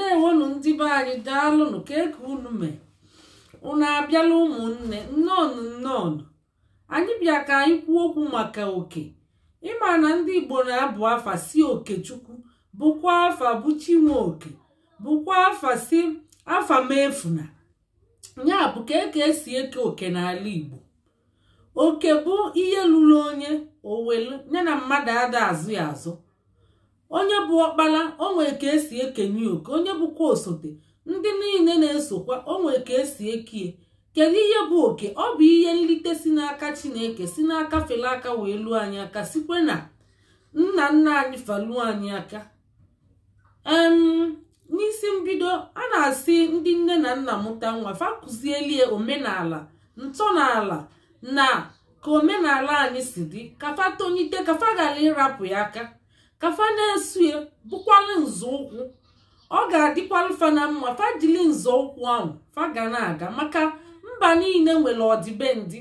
ndeewonu ndị be anyị daalụnụ ka eke unu mee unu abịala ụmụnne nnọọnụ nnọọnụ anyị bịa ka anyị kwuo okwu maka oke ịma na ndị igbo na-abụ afa si okechukwu bụkwa afa bụ chinwe oke bụkwa afa si afa mefuna ya bụ ka eke esi eke oke n'ala igbo oke bụ ihe lụrụ onye owelu ya na mmadụ ada azụ ya azụ onye bụ ọkpara onwere ka esi ekenye oke onye bụkwa osote ndị niile na-esokwa onwere ka esi ekie kedu ihe bụ oke ọ bụ ihe nlite si n'aka chineke si n'aka fere aka wee lụọ anyị aka sikwe na nna nna anyị faluo anyị aka n'isi mbido a na-asị ndị nne na nna mụta nwa fa kụzielie omenala ntọala na ka omenala anyị si dị kafa tonyite kafa ghara ịrapụ ya aka kafa na-esu ya nzọụkwụ ọ ga-adịkwalụ fa na mma fajili nzọụkwụ ahụ fa ga na-aga maka mba niile nwere ọdịbendị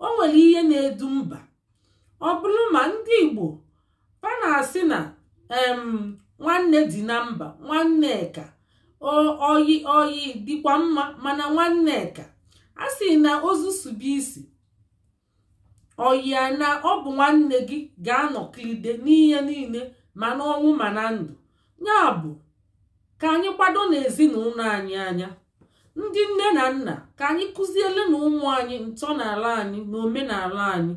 o nwere ihe na-edu mba ọ bụrụ ma ndị Igbo fa na-asị na nwanne dị na mba nwanne nwanneka oyi oyi dịkwa mma mana nwanneka a sị na ozu isi oyi na ọ bụ nwanne gị ga-anọkilide n'ihe niile ma n'ọnwụ ma na ndụ ya bụ ka anyị kwado n'ezinụlọ anyị anya ndị nne na nna ka anyị kụziele na ụmụ anyị n'ala anyị na omenala anyị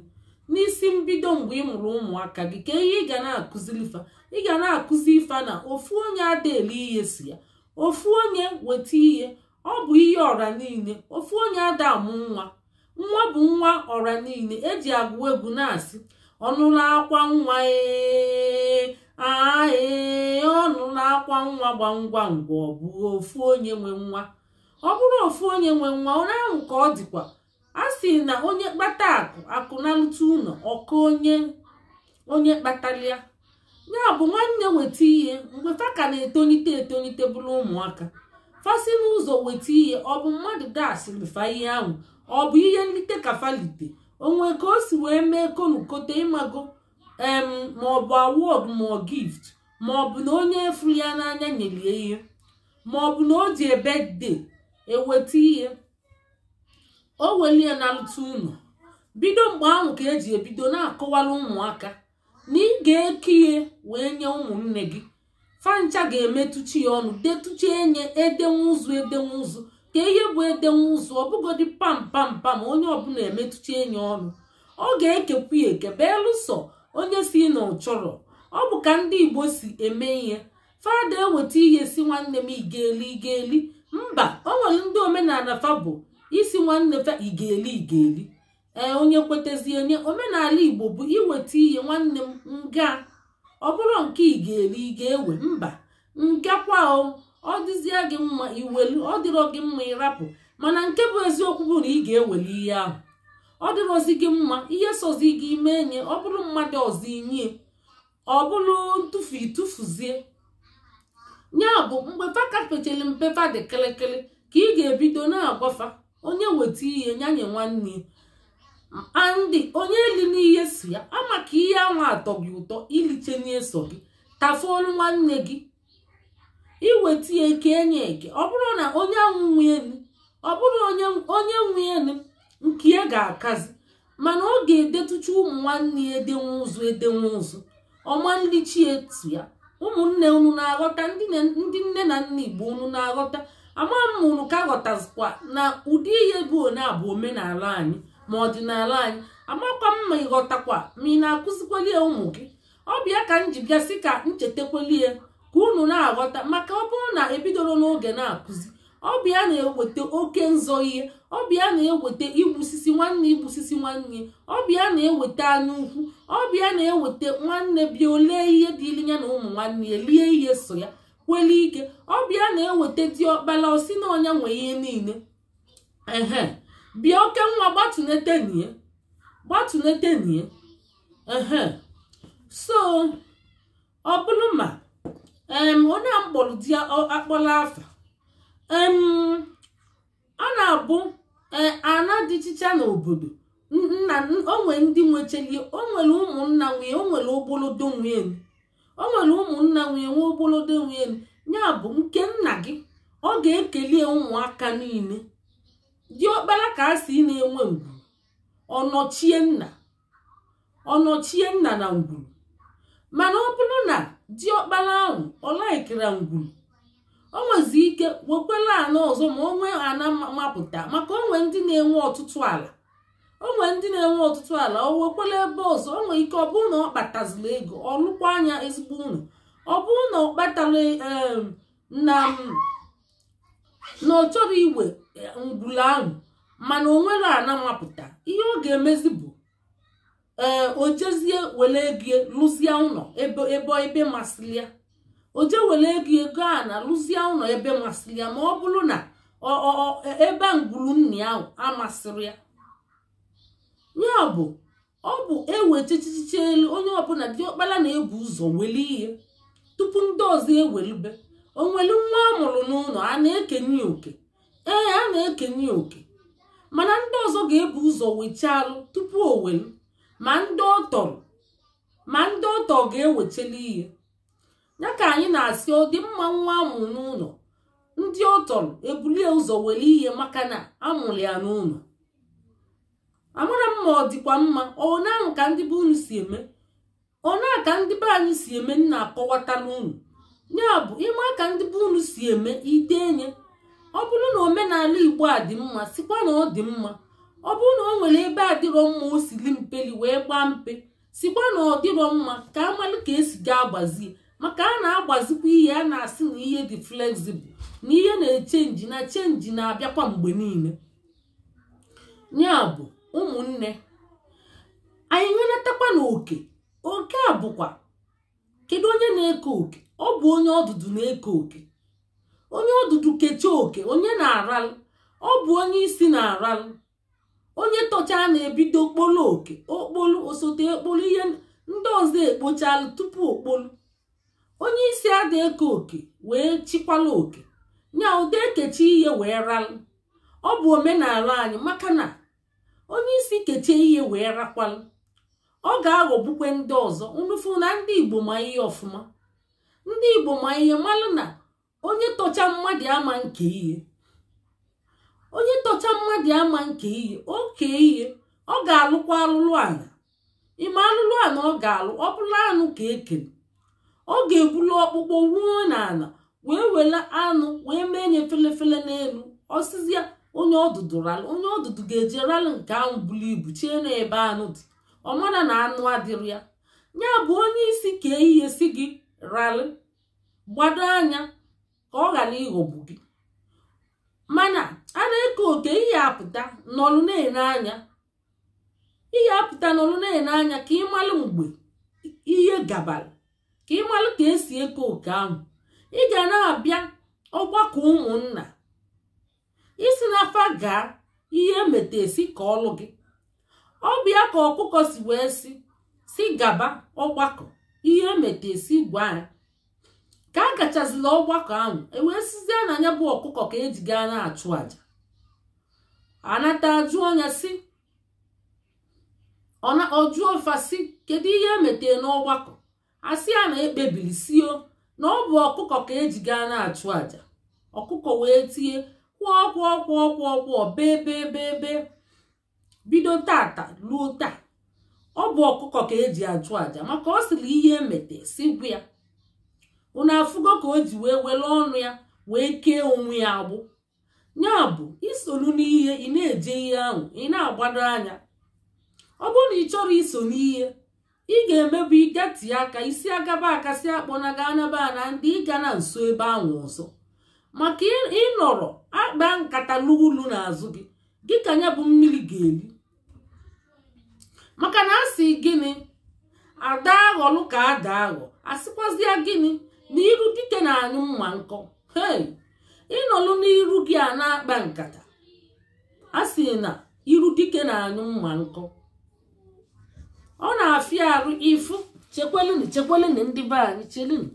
n'isi mbido mgbe ị mụrụ ụmụaka gị ka ihe ị ga na-akụziri ifa ị ga na-akụzi ifa na ofu onye adaele ihe si ya ofu onye weta ihe ọ bụ ihe ọra niile ofu onye ada amụ nwa nwa bụ nwa ọra niile eji agụ egwu na-asị ọnụla akwa nwa ee ee ọnụ na-akwa nwa gba ngwa ngwa ọ bụ ofu onye nwe nwa ọ bụrụ ofu onye nwe nwa onye ahụ ka ọ dịkwa a sị na onye kpata akụ akụ na ntụ ụlọ ọka onye onye kpatalịa ya bụ nwanne weta ihe mgbe fa ka na-etolite etolite bụrụ ụmụaka fasị n'ụzọ weta ihe ọ bụ mmadụ gasịrị fa ihe ahụ ọ bụ ihe nlite ka falite onwe ka o si wee mee konukote ịmago em maọbụ awọd ma ọ gift maọbụ na onye furu ya n'anya nyere ya ihe maọbụ na o ji ebede eweta ihe o welie na ntụ ụlọ bido mgbe ahụ ka eji ebido na-akọwara ụmụaka na ị ga-eke ihe wee nye ụmụnne gị fancha ga-emetụchi ya ọnụ detụcha enye edenwe ụzụ edenwe ụzụ ka ihe bụ edenwe ụzụ ọbụgodi pam pam pam onye ọbụla emetụcha enye ọnụ ọ ga-ekekwu ekebe eluso onye si na ọ chọrọ ọ bụ ka ndị igbo si eme ihe fada eweta ihe si nwanne m igeli igeli mba o nwere ndị omenala fa bụ isi nwanne fa igeli igeli ee onye kwetezi onye omenala igbo bụ iweta ihe nwanne m nga ọ bụrụ nke igeli ga-ewe mba ngakwa ọ dịzie gị mma iwelu ọ dịrọ gị mma ịrapụ mana nke bụ eziokwu bụ na ị ga-eweli ihe ahụ ọ dịrozi gị mma ihe sozi gị ime nye ọ bụrụ mmadụ ọzọ inye ọ bụrụ ntụfu itụfuzie ya bụ mgbe fa mpefa dị kịrịkịrị ka ị ga-ebido na agbafa onye weta ihe nyanye nwanne andị onye eli n'ihe si ya ama ka ihe anwa atọ gị ụtọ iliche n'eso gị tafuolu nwanne gị iweta eke enye eke ọ bụrụ na onye anwụ nwe ọ bụrụ onye nwe elu nke ya ga-akazi mana ọ ga-edetucha ụmụ nwanne ya edenwe ụzụ edenwe ụzụ ọma etu ya ụmụnne unu na-aghọta ndị nne na nna igbo unu na-aghọta ama m ka ghọtazikwa na ụdị ihe bụ one abụ omenala anyị ma ọdịnala anyị amakwa mma ma ịghọtakwa ma ị na-akụzikweli ụmụ gị ọ bịa ka m ka bịasị ka ya ka unu na-aghọta maka ọ bụrụ na ebidoro n'oge na-akụzi ọ bịa na-eweta oke nzọ ihe ọbịa na-eweta igbusisi nwanne igbusisi nwanne ọbịa na-eweta anya ukwu ọbịa na-eweta nwanne bịa ole ihe dịịrị ya na ụmụ nwanne ya lie ihe so ya kweli ike ọbịa na-eweta dị ọkpara osi na ọnya nwee ihe niile ehe bịa oke nwa gbatunetenie gbatunetenie ehe so ọ bụrụ ma onye a mkpọrọ di akpọla afa a na-abụ E, ana dị chicha n'obodo nna nwee ndị nwechelie o nwere ụmụnna nwunye nwere ogbolodo nwere nwe ogbolodo ya bụ nke nna gị ọ ga-ekele ụmụaka niile ọkpala ka a si na-enwe ngwuru ọnọchie nna nna na ngwuru mana ọ bụrụ na dị ọkpara ahụ ọ laikira ngwuru o nwezi ike wekwere ala ọzọ ma onwe ana mapụta maka onwe ndị na-enwe ọtụtụ ala onwe ndị na-enwe ọtụtụ ala o wekwere ebe ọzọ onwe ike ọ bụrụ na ọ kpatazila ego ọ lụkwa anya ezigbo ụlọ ọ bụrụ na ọ na na ọ chọrọ igwe ngwụla ahụ mana onwere ana mapụta ihe ọ ga-emezi bụ ee o jezie were ego lụzie ụlọ ebe ebe masịrị ya o je were ego ego a na lụzie ụlọ ebe masịrị ya ma ọ bụrụ na e, ebe ngwuru nna ahụ amasịrị ya ya ọbụ ọ bụ ewechichichi elu onye ọbụla ọkpara na-ebu ụzọ nwere ihe tupu ndị ọzọ e o nwere nwa amụrụ n'ụlọ a na-ekenye oke ee a na-ekenye oke mana ndị ọzọ ga-ebu ụzọ wechalụ tupu o welu ma ndị ọ ma ndị ga-ewecheli ihe ya ka anyị na-asị ọ dị mma nwa amụrụ n'ụlọ ndị ọ tọrọ ebulie ụzọ were ihe maka na amụrụ ya n'ụlọ amara m ma ọ dịkwa mma ọna ka ndị be unu si eme ọna ka ndị be anyị si eme nna akọwata n'ụlọ ya bụ ịma ka ndị be unu si eme enye ọ bụrụ na omenala igbo a dị mma sikwa na ọ dị mma ọ bụrụ na o nwere ebe adịrọ mma o sili mpeli wee gbaa mpe sikwa na ọ dịrọ mma ka amalụ ka esi gaa gbazie maka a na-agbazikwa ihe a na-asị na ihe dị flexible na ihe na-echenji na chenji na-abịakwa mgbe niile ya bụ ụmụnne anyị nwenatakwa na oke oke a bụkwa kedu onye na-eke oke ọ bụ onye ọdụdụ na-eke oke onye ọdụdụ kechaa oke onye na-aralụ ọ bụ onye isi na-aralụ onye tọcha na-ebido okpolo oke okpolu osote okpolu ihe ndị ọzọ ekpochalụ tupu okpolu onye isi adị eke oke wee chịkwala oke nya ụdị ekechi ihe wee ralụ ọ bụ omenala anyị maka na onye isi kechie ihe wee rakwalụ ọ ga-aghọgbukwe ndị ọzọ nrufu na ndị igbo ma ihe ọfụma ndị igbo ma ihe malụ na onye tọcha mmadụ ama nke ihe onye tọcha mmadụ ama nke ihe oke ihe ọ ga-alụkwa alụlụ ala ịma alụlụ ala ọ ga-alụ ọ bụla anụ ka ekere ọ ga-ebulu ọkpụkpọ ruo n'ala wee were anụ wee mee nye felefele n'elu ọsịzịa onye ọdụdụ onye ọdụdụ ga-eji ralụ nke ahụ buru ibu chie nebe ebe anụ dị ọ mara na anụ adịrị ya ya bụ onye isi ka ehihie si gị ralị gbado anya ka ọ ghara ịghọgbu gị mana a na-eke oke ihe apụta n'ọlụ na-ene anya ihe apụta n'ọlụ na-ene anya ka ị malụ mgbe ihe gabara ka ịmalụ ka esi eke oke ahụ ị ga na-abịa ọgbakọ ụmụnna isi n'afa gaa ihe emeta esi ka ọlụ gị ọ ka ọkụkọ si wee e si gaba ọgbakọ ihe emeta esi gwa ya ka a gachazila ọgbakọ ahụ ewee sizie na anya bụ ọkụkọ ka eji gaa na-achụ àjà anata ajụ anya si fasi kedu ihe emete n'ọgbakọ asị a na ekpebiri sio na ọ bụ ọkụkọ ka eji gaa na-achụ àjà ọkụkọ wee tie kwụọ kwụọ kwụọ kwụọ kwụọ bee bee bee bee bido tata ruo taa ọ bụ ọkụkọ ka eji achụ àjà maka ọ sịrị ihe emete si gwa ya ụna afụgo ka o ji wee were ọnụ ya wee kee onwe ya agbụ ya bụ isolu n'ihe ị na-eje ihe ahụ ị na-agbado anya ọ bụrụ na ị chọrọ iso n'ihe ị ga-emebu ịgatie aka isi agaba akasị akpọnaga anaba na ndị ịga na nso ebe ahụ ọzọ maka ịnọrọ akpa nkata n'ulu n'azụ gị gị ka ya bụ mmiri ga-eri maka na asị gịnị ada aghọlụ ka ada aghọ asịkwazịa gịnị na iru dike na-anyụ mma nkọ ịnọlụ n'iru gị a na-akpa nkata a na iru dike na-anyụ mma nkọ ọ na-afịa arụ ifu chekwelunu chekwelunu ndị be anyị chelunu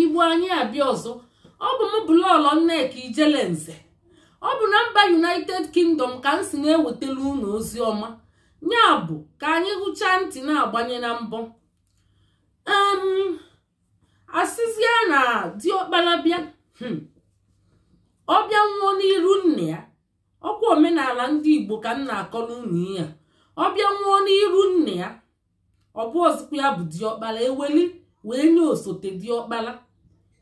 igbu anyị abịa ọzọ ọ bụ m bụlọọlọ nneka ijelenze ọ bụ na mba united kingdom ka m si na-ewetara unu ozi ọma ya bụ ka anyị hụchaa ntị na-agbanye na mbọ asịzie na diọkpara bịa hmm. ọ bịa nwụọ n'iru nna ya ọkwa omenala ndị igbo ka m na akọ unu ihe a ọ bịa nwụọ n'iru nna ya ọ bụ ọzụkwa ya bụ diọkpala eweli wee nye osote diọkpara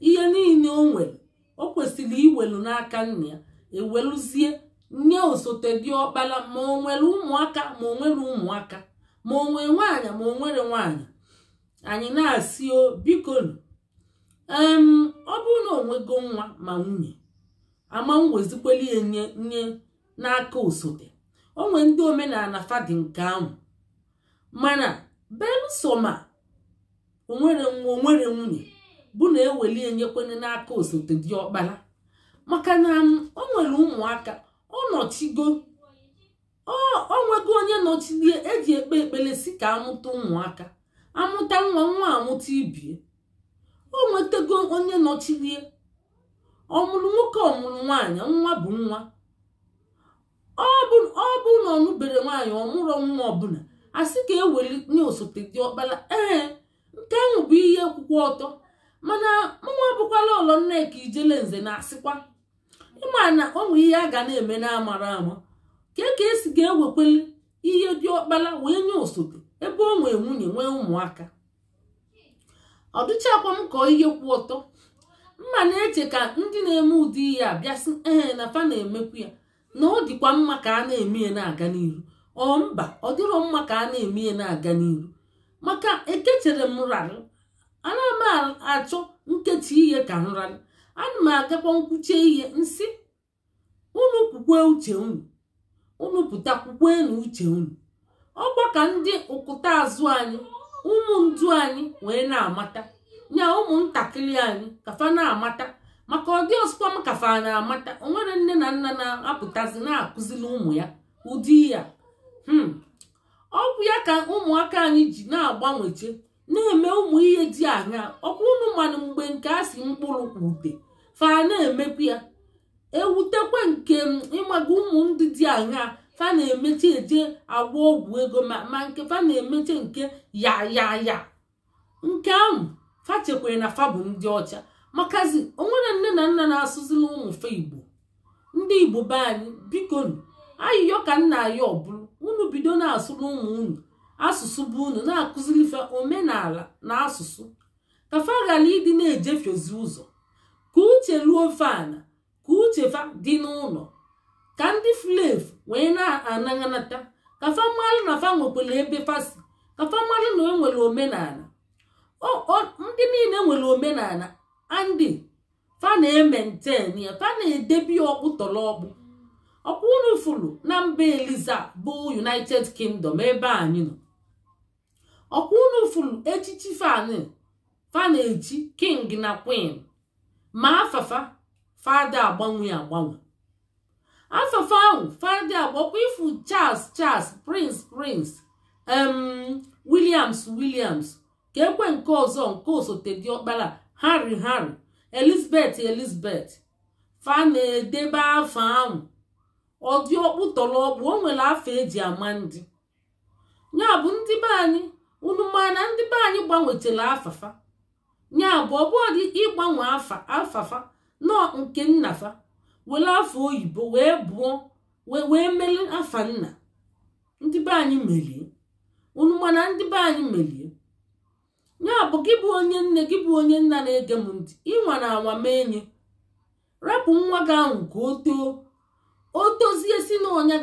ihe niile o nwere o kwesịrị iwelu n'aka nna ya eweluzie nye osote diọkpara ma o nwere ụmụaka ma onwere ụmụaka ma o nwere ma o nwere nwaanyị anyị na-asị o bikonu ọ bụrụ na onwego nwa ma nwunye ama m wezikweli ya nye nye n'aka osote onwe ndị omenala fadi nke ahụ mana belụsọ ma onwere nwa onwere nwunye bụ na eweli enyekwana n'aka osote dị ọkpara maka na um, o nwere ụmụaka ọ nọchigo ọ nwego onye nọchilie eji ekpe ekpere si ka amụta ụmụaka amụta nwa nwa amụta ibie o nwetego onye nọchilie ọ mụrụ nwoke ọ mụrụ nwaanyị nwa bụ nwa ọ bụ na ọ nụbere nwaanyị ọmụrụ nwa ọbụla a sị ka eweli nye osote dị ọkpara ee nke ahụ bụ ihe kwụkwọ ọtọ mana mụnwa bụkwala ọlọ nneka ijele nze na-asịkwa ịma na ọnwụ ihe a ga na-eme na-amara ama ka ka esi ga-ewekweli ihe dị ọkpara wee nye osote ebe ọ nwee nwunye nwee ụmụaka ọ dịchakwa m kọọ ihe kwụ ọtọ mma na-eche ka ndị na-eme ụdị ihe a bịasị ee na fa na-emekwu ya na ọ dịkwa mma ka a na-eme na-aga n'iru ọ mba ọ dịrọ mma ka a na-eme ya na-aga n'iru maka ekechere m rarụ ana m achọ nkechi ihe ka m rarụ ana m agakwa nkwuchie ihe nsị unu kwukwe uche unu unu pụta kwukwe na uche unu ọkwa ka ndị ụkụta azụ anyị ụmụ ndụ anyị wee na-amata nya ụmụntakịrị anyị kafa na-amata maka ọdị ọzụkwa m kafa na-amata nwere nne na nna na-apụtazi na-akụzili ụmụ ya ụdị ya hmm. ọgwụ ya ka ụmụaka anyị ji na-agbanweche na-eme ụmụ ihe dị anya ọkwa mmanụ mgbe nke a si mkpụrụ ute fa na-emekwu ya ewutekwa nke mm, ịmaga ụmụ ndị dị anya fa na-emecha eje agwa ọgwụ ego ma nke fa na-emecha nke ya ya ya nke ahụ fa chekwere na fa bụ ndị ọcha makazi onwere nne na nna na-asụzila ụmụ igbo ndị igbo be anyị bikonu ayịyọ ka nna aya ọ bụrụ unu bido na-asụrụ ụmụ unu asụsụ bụ unu na-akụzilife omenala na asụsụ kafa ghara ịdị na-ejefiozi ụzọ ka uche ruo fana ka uchefa dị n'ụlọ ka ndị flev wee na-anaghịnata kafa mmalụ na fa nwekwara ebe fasi kafa mmalụ na enwere omenala ndị niile nwere omenala andị fana ementen ya na edebi ọkpụ tọrọ ọkpụ ọkpụ unu na mba eliza bụ united kingdom ebe anyị nọ ọkpụ unu fụrụ echichi fana echi king na queen ma afafa fada agbanwe agbanwe afafa ahụ fada agbakwa ifu charles charles prince prince williams williams ka ekwe nke ọzọ nke osote dị ọkpara harry harry elizabeth elizabeth fa na-edebe afọ ahụ ọdị dị tọrọ ọkpụ o nwere afọ eji ama ndị ya bụ ndị be anyị unu ma na ndị be anyị gbanwetara afafa ya bụ ọ ịgbanwe afafa nọ nke nnafa were afọ oyibo wee bụọ wee mere afa nna ndị ndị be anyị merie ya bụ gị bụ onye nne gị bụ onye nna na-ege m ntị ịnwa na anwa mee nye rapụ nwa gị ahụ ka o too o tozie si na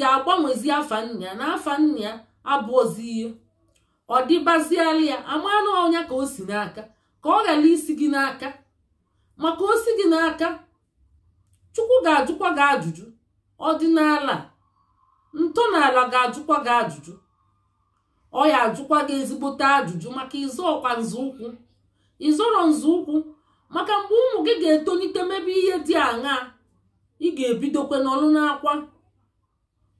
ga-agbanwezi afa nna na afa nna ya abụọzi ihe ọ dịbaziala ya amanụ ọnya ka o si n'aka ka ọ ghara isi gị n'aka maka o si gị n'aka chukwu ga-ajụkwa gị ajụjụ ọdịnala ntọala ga-ajụkwa gị ajụjụ ọ ya ajụkwa gị ezigbote ajụjụ maka ịzọọkwa nzọụkwụ ịzọrọ nzọụkwụ maka mgbe ụmụ gị ga-etolite mebe ihe dị aṅaa ị ga-ebidokwe n'ọrụ n'akwa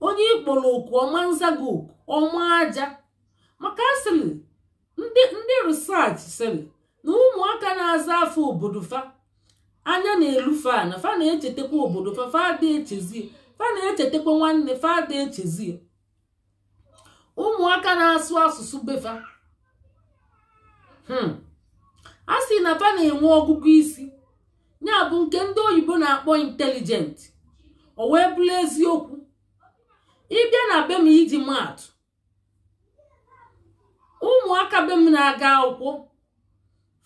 onye ịkpọrọ oku ọma nzago ọma aja maka asịrị ndị risach sịrị na ụmụaka na-aza afọ obodo fa anya na-elu fa na fa na-echetakwa obodo fa fa ada echezi fa na-echetakwa nwanne fa ada echezi ụmụaka na-asụ asụsụ befa hmm. a sị na fa na-enwe ọgụgụ isi ya bụ nke ndị oyibo na-akpọ intelijent o wee bụrụ eziokwu ịbịa na be m iji maatụ ụmụaka be m na-aga akwụkwọ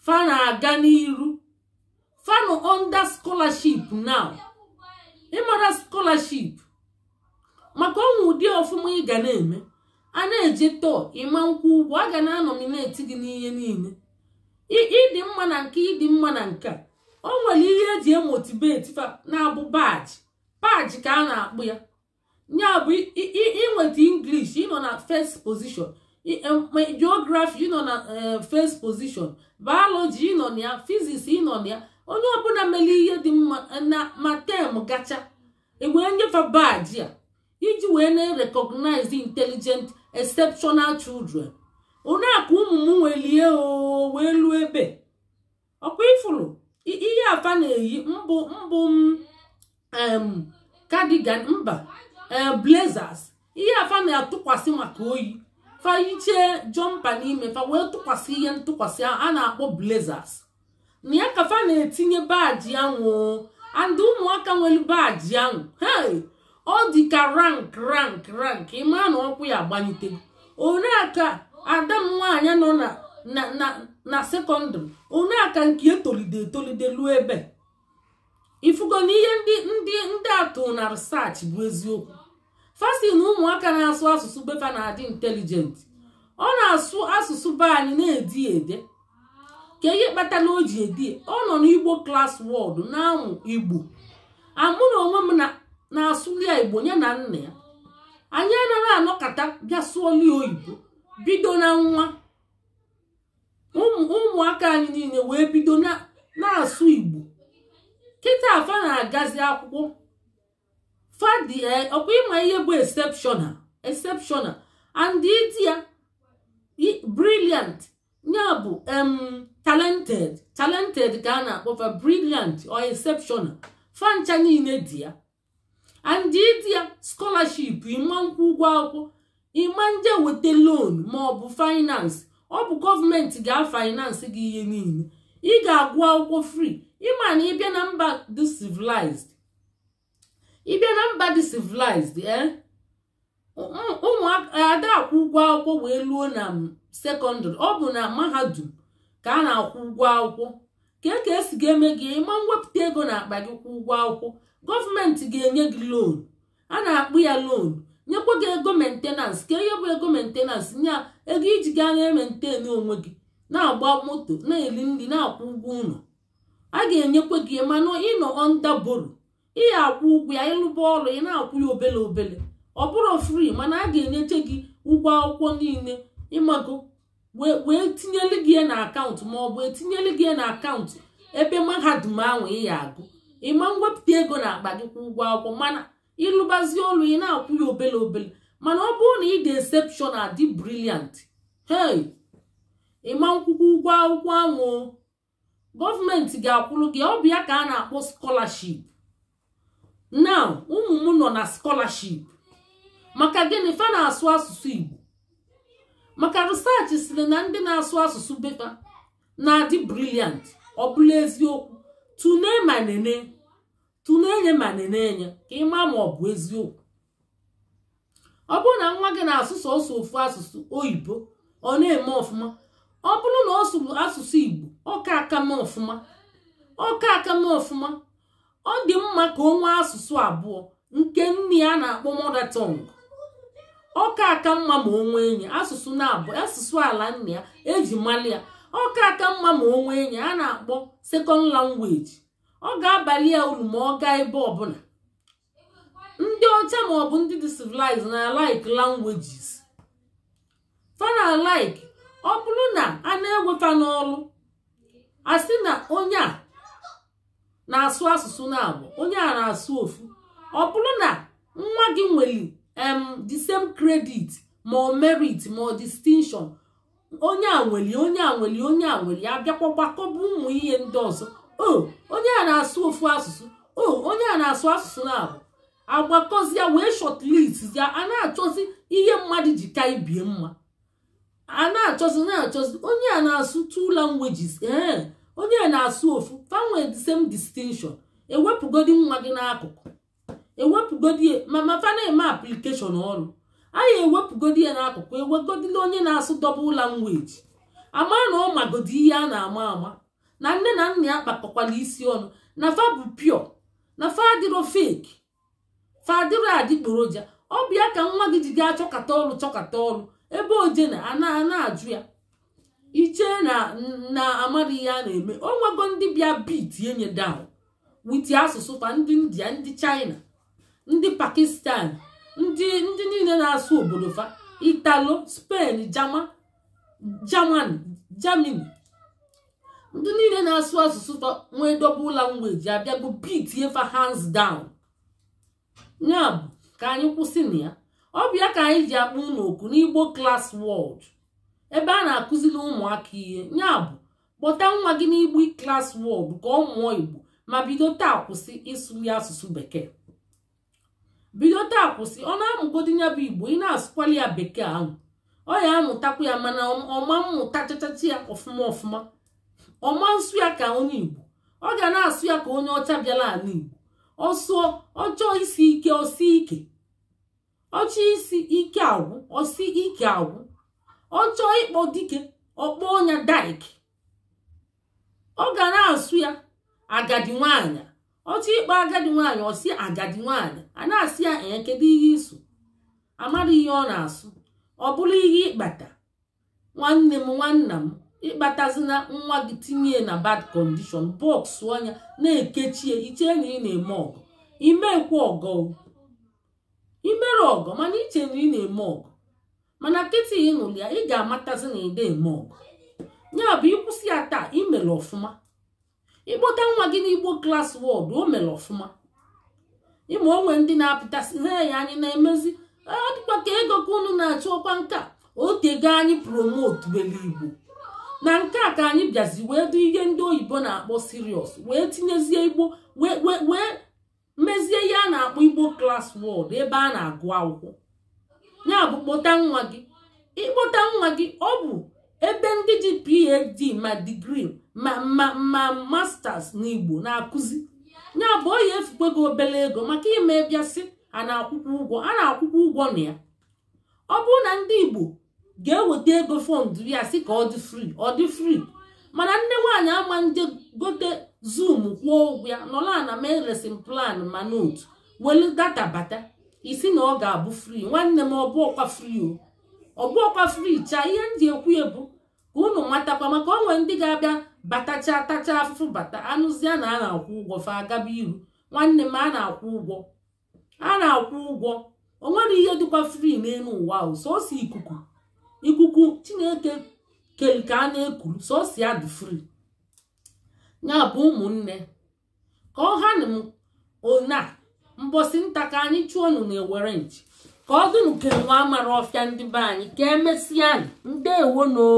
fa na-aga n'iru fanu onda scholarship now ịmara scholarship maka ọnwụ ụdị ọfụma ị ga na-eme a na-eji tọọ ịma nkwụ ụgwọ a ga na-anọmineti gị n'ihe niile ịdị mma na nke ịdị mma na nke o nwere ihe eji emotibeti na-abụ baji baji ka a na-akpụ ya ya bụ ịnweta English ịnọ na first position geography ịnọ na eh, first position biology ịnọ na ya physics ịnọ na ya onye ọbụla mere ihe dị mma eh, na ma tem gacha e wee nyefe baji a iji wee na-recognize intelligent exceptional children onye ụmụ m nwere lie oo wee lụọ ebe ọkwa ifuru ihe afa na-eyi mbụ mbụ m cardigan mba eh, blazers ihe afa na-atụkwasị maka oyi fayichee jọmpa n'ime fa wee tụkwasị ihe ntụkwasị a na-akpọ blazers na ya ka fa na-etinye baji anwụ and ụmụaka nwere baji anwụ hei ọ dị ka rank rank rank ịma na ọkwụ ya agbanite one aka ada m nwaanyị nọ na sekọndịrị one aka nke etolide etolide luo ebe ifugo na ihe ndị ndị ndị atụ na research bụ eziokwu fasi ụmụaka na-asụ asụsụ befa na-adị intelijent ọ na-asụ asụsụ be anyị na-edi ede ka ihe kpatara o ji edi ọ nọ n'igbo klas wọd na-amụ igbo onwe m na na-asụli igbo nye na nna ya anyị anaghị anọkọta bịa sụọ oyibo bido na nwa ụmụaka anyị niile wee bido na-asụ igbo kịta afa na-agazi akwụkwọ fadi e, ọkwa ịma ihe bụ exceptional exceptional and briliant ya brilliant bụ talented talented ka a na-akpọfa briliant or exceptional fancha niile dị ya and ya skọlaship ịma nkwụ ụgwọ akwụkwọ ịma ndị weta loan ma ọ bụ finance ọ bụ gọọmenti ga-finance gị ihe niile ị ga-agụ akwụkwọ free ịma na ịbịa na mba dị civilized ịbịa na mba dị civilized eh? ụmụada akwụ ụgwọ akwụkwọ wee luo na sekọndịrị ọ bụ na mahadum ka a na-akwụ ụgwọ akwụkwọ ka e ka esi ga-eme gị ịma mwepụta ego na akpa gị kwụ ụgwọ akwụkwọ gọọmenti ga-enye gị loan a na-akpụ ya loan nyekwa gị ego mentenans ka ihe bụ ego mentenans nye ego iji gaa na-ementenu onwe gị na-agba moto na-eri nri na-akwụ ụgwọ ụlọ a ga-enyekwa gị manụ ịnọ onda boro akwụ ụgwọ ya ịlụba ọrụ ị na-akwụ ya obele obele ọ bụrụ fri mana a ga enyecha gị ụgwọ akwụkwọ niile ịmago wee tinyeli gị na akaụntụ ma ọ bụ gị na akaụntụ ebe mahadum ahụ ị ya agụ ịma mwepụta ego na akpa gị kwa ụgwọ akwụkwọ mana ịlụbazie olu ị na-akwụ ya obele obele mana ọ bụrụ na ị dị exception adị briliant hey ịma nkwụkwọ ụgwọ akwụkwọ ahụ gọọmenti ga-akwụrụ gị ọ bụ ya ka a na-akpọ scholarship now ụmụ m nọ na scholarship maka gịnị fa na-asụ asụsụ Igbo maka research sịrị na ndị na-asụ asụsụ befa na-adị briliant ọ bụla eziokwu tụlee ma nene tụlee enye ma nene enye ka ịma ma ọ bụ eziokwu ọ bụrụ na nwa gị na-asụ sọsọ ofu asụsụ oyibo ọ na-eme ọfụma ọ bụrụ na ọ sụrụ asụsụ igbo ọka mee ọfụma ọka mee ọfụma ọ dị mma ka ọ nwee asụsụ abụọ nke nne ya na-akpọ mother tongue ọka aka mma ma o nwee enyi asụsụ na-abụ asụsụ ala nna ya eji mali ya ọka aka mma ma onwe enyi a na-akpọ sekọnd langweji ọ ga-abalị ya uru ma ọ gaa ebe ọbụla ndị ọcha maọbụ ndị dị civilized na like languages fana like ọ bụrụ na a na-eweta n'ọrụ a na onye a na-asụ asụsụ na-abụ onye a na-asụ ofu ọ bụrụ na nwa gị nwere em the credit ma merit ma ọ distinction onye a nweli onye a nweli onye a ya abịakwa gbakọba ụmụ ihe ndị ọzọ o onye a na-asụ ofu asụsụ o onye a na-asụ asụsụ na-abụ agbakọzia wee shọtlist ya a na-achọzi ihe mmadụ ji ka ibie mma a na-achọzi na-achọzi onye a na-asụ two languages ee eh, onye a na-asụ ofu fanwe same distinction ewepụgodi nwa gị n'akụkụ ewepụgodi ma ma na-eme application ọrụ anyị ewepụgodi ya n'akụkụ ewegodila onye na-asụ dọbụl langweji amara na ọ magodi ihe a na-ama ama na nne na nna ya kpakọkwala isi ọnụ na fa bụ pio na fa adịrọ feki fa adịrọ adịgboroja ọ bịa ka nwa gị ji gaa chọkata ọrụ chọkata ọrụ ebe oje na ana na-ajụ ya ichee na na amara ihe a na-eme o nwego ndị bịa bitie nye down witi asụsụ fa ndị india ndị china ndị pakistan ndị ndị niile na-asụ obodo fa italo spen jama jaman jamini ndị niile na-asụ asụsụ nwee dobe ụla mgbeji abịa bụ bitie fa hands down ya bụ ka anyị kwụsị na ya ọ bụ ya ka anyị ji akpụ n'oku n'igbo class world ebe a na-akụziri ụmụaka ihe ya bụ kpọta nwa gị n'igbo class world ka ọ mụọ igbo ma bido taa kwụsị ịsụ ya asụsụ bekee bido taa kwụsị ọ na-amụgodi ya bụ igbo ị na-asụkwali ya bekee ahụ ọ ya amụtakwu ya mana ọma mmụta chachachi ya ọfụma ọfụma ọma nsụ ya ka onye igbo ọ ga na-asụ ya ka onye ọcha bịala ala igbo ọsụọ ọchọọ isi ike ọsi ike ọchọ isi ike agwụ ọsi ike agwụ ọchọọ ịkpọ dike ọkpọ ọnya daik ọ ga na-asụ ya agadi nwaanyị otu ikpe agadi nwaanyị ọsi agadi nwaanyị a na-asị ya ee kedu ihe iso amadị ihe ọ na-asụ ọ bụrụ ihe ịkpata nwanne m nwanna m ịkpatazina nwa gị tinye na bad condition bọks anya na-ekechie iche na ị na-eme ọgụ imekwa ọgọ imere ọgọ mana iche na ị na-eme ọgụ mana nkịtị ịnụli ya ị ga-amatazi na ị na-eme ọgụ ya bụ ịkwụsị ya taa imere ọfụma ịkpọta nwa gị n'igbo klas wọd o mere ọfụma ịma onwe ndị na-apụtasị he ya anyị na-emezi ah, ọ dịkwa ka ego ka unu na-achọ ọkwa nka otego anyị promotu were igbo na nke a ka anyị bịazi wee dị ihe ndị oyibo na-akpọ sirios wee tinyezie igbo wee mezie ihe a na-akpọ igbo klas wọd ebe a na-agụ akwụkwọ ya bụ kpọta nwa gị ịkpọta nwa gị ọ bụ ebe ndị ji PhD ma digrii ma ma ma masters n'Igbo na-akụzi ya bụ oyi etukwa gị obere ego maka ime bịasị a na-akwụkwọ ụgwọ a na-akwụkwọ ụgwọ na ya ọ bụrụ na ndị Igbo ga-eweta ego fọndụ ya sị ka ọ dị fri ọ dị fri mana nne nwaanyị ama ndị gote zoom kwụọ ụgwọ ya nọla na mee lesin plan ma note welu data bata isi na ọ ga-abụ fri nwanne m ọbụ ọkwa fri o ọbụ ọkwa fri chaa ihe m ji ekwu ebu ka ụnụ nwatakwa maka onwe ndị ga-abịa batacha tacha afụfụ bata anụzie na a na-akwụ ụgwọ fa agaba iru nwanne m a na-akwụ ụgwọ a na-akwụ ụgwọ o nwere ihe dịkwa fri n'elu ụwa ahụ sọsọ ikuku ikuku chineke kere ka a na-ekuru sosi ya dị fri ya bụ ụmụnne ka ọ ha na ona mbosi nta ka anyị chụọ nụ na-ewere nchi ka ọ dịnụ ka enwe amara ọfịa ndị be anyị ka emesịa anyị ndewonoo